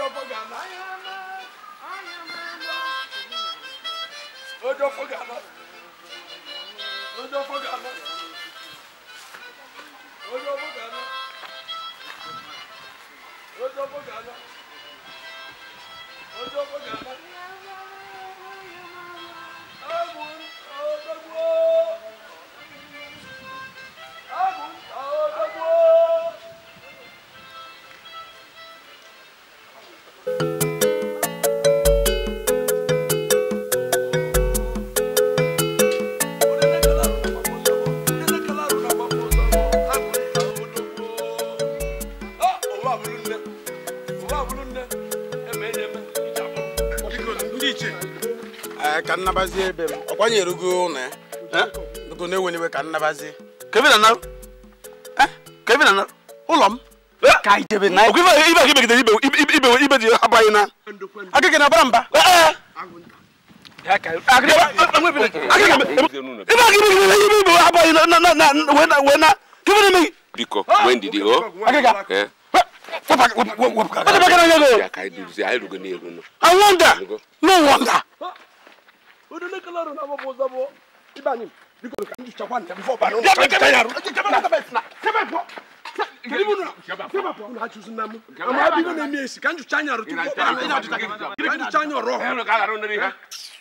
odofogana odofogana odofogana odofogana odofogana odofogana. iche ka nnabazi ebe m ọkwa erugo ụlọ ya dugo na-enwene ka nnabazi. kevin eh? ụlọ m eh? ka ijebe na ibe gị megidere ibe ibe dị eh, abaghị na na na-abara mba biko ah! na dị o What the fuck are you doing? I wonder. No wonder. Kanju chanyaru tu, kanju chanyaru roho.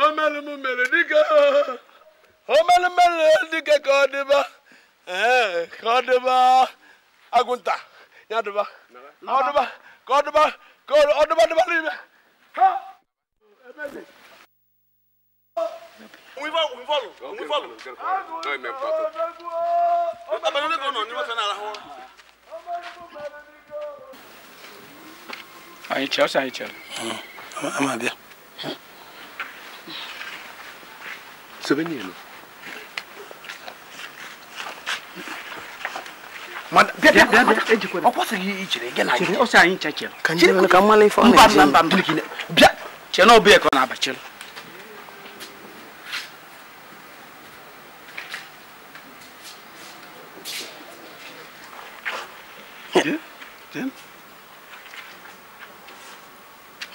omele mu mele dike omele mele dike ka ọ eh, dịba ka ọ dịba agụnta ya dịba ọ dịba ka ọ dịba ka ọ dịba dịba n'ime ha ebe dị. Um ivalo, um ivalo, um ivalo. Não é mesmo, pato. Tá bem, não ligou não, não vai nada. Aí, tchau, aí, tchau. Amabia. Це веніло.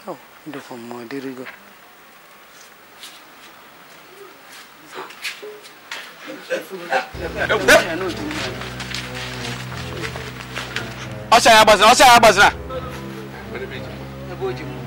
Oh, the form, my dear girl. ọsẹ agbazina ọsẹ agbazina. ẹ b'o jẹ mu.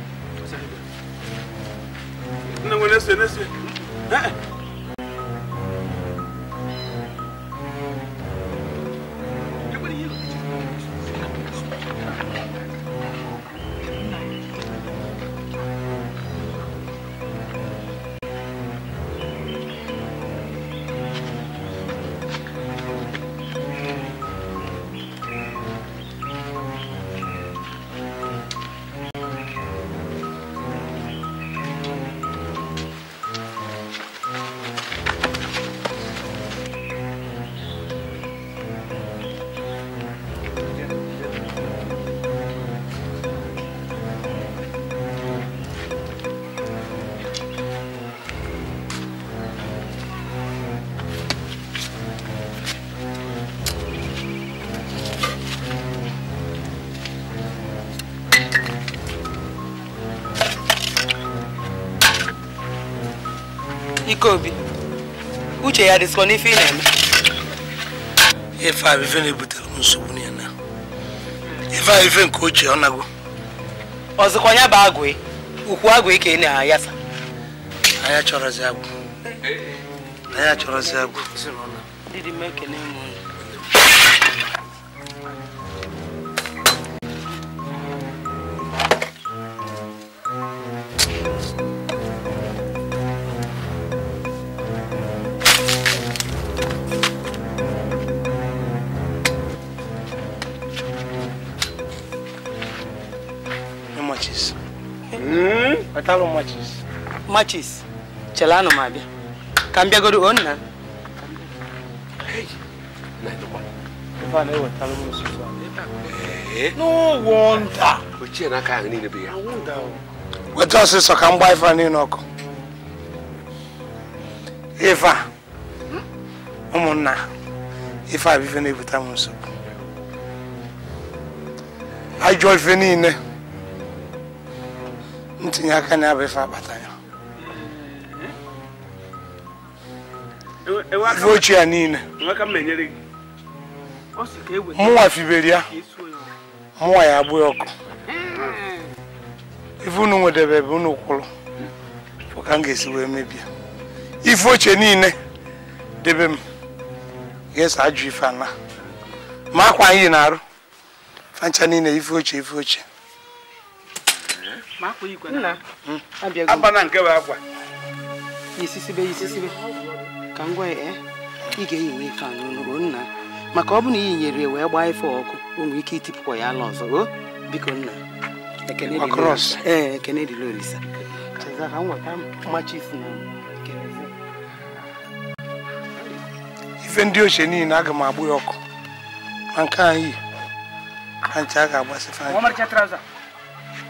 Ikeobi uche ya dịsịkwa n'ife ị na-eme ife a ife na-ebutere m nsogbu na ya ife a ife nke ochie ọ nago ọzọkwa ya bụ agwụ e, ukwu agwụ ike e na-ayasa anya chọrọzi agwụ anya chọrọzi agwụ Thank you. wetalụ eh? na machis chelanụ m abịa ka m bịagoro o nna weta ọsịsọ ka m gbaa ife niile ọkụ ife ụmụnna ife abụife na-ebute m ajọ ife niile ntinye aka na abịa ife akpata ya ife ochie ya niile e mụnwa fibere ya mụnwa ya abụghị ọkụ ife unu nwedebe ebe unu kwụrụ ka m ga-esi wee mebie ife ochie niile debe m ga-eso ajụ ife ana ma akwa anyị na-arụ fancha niile ife ochie ife ochie abana hmm. nke bụ akwa isisibe isisibe ka m gwa ya eh, ị ga-eyi nwa ife nna maka ọ bụ na i yinyere wee gbaa ife ọkụ o nwere ike itipụkwa ya ala ọzọ o biko nna ee ekene dịla eh, ka m ife ndị ochie niile aga m agbụ ya ọkụ ma nke anyị a ga-agbasị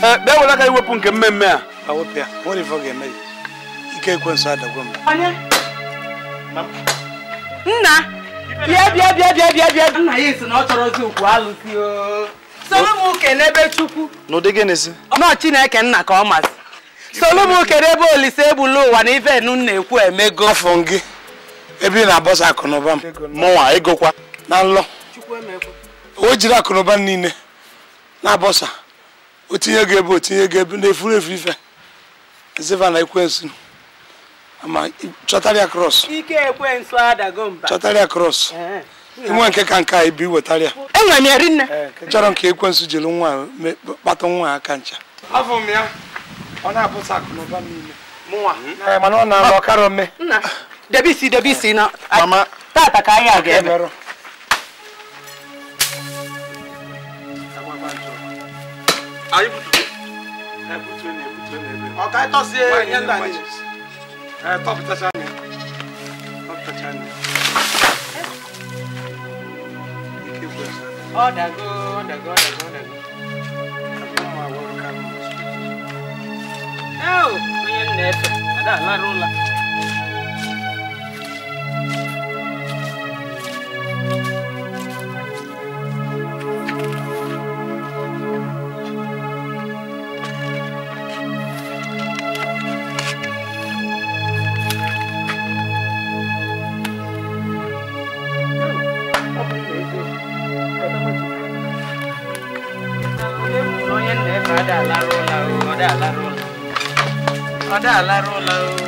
kpee eh, were aka iwepụ nke mmemme a ike ekwensu nna nna na ọ chineke nna ka ọ masị soro m n'ebe olise egbula ụwa na ife nu na-ekwu emego afọ gị ebe ị na-abọsa akụnụba mụnwa egokwa na nlọ o jiri akụnụba niile na-abọsa otinye gị ebe otinye gị ebe na-efuru efu ife ezeva na ekwensu ama chọtarịa kros ike ekwensu adago mba chọtarịa krọs inwe nke ka nke a ibi wetarịa enwere ya chọrọ nke ekwensu jiri nwa kpata nwa aka ncha afọ m ya ọ na mana ọ na-alụ ọkara ome debisi debisi na tata ka anyị aga ebe Are you put I put twenty, I put twenty. Okay, I toss here. Why not I top touch on Top touch on Oh, that go, that go, that go, that go. Oh, we in there. Ada, la Ada aláró la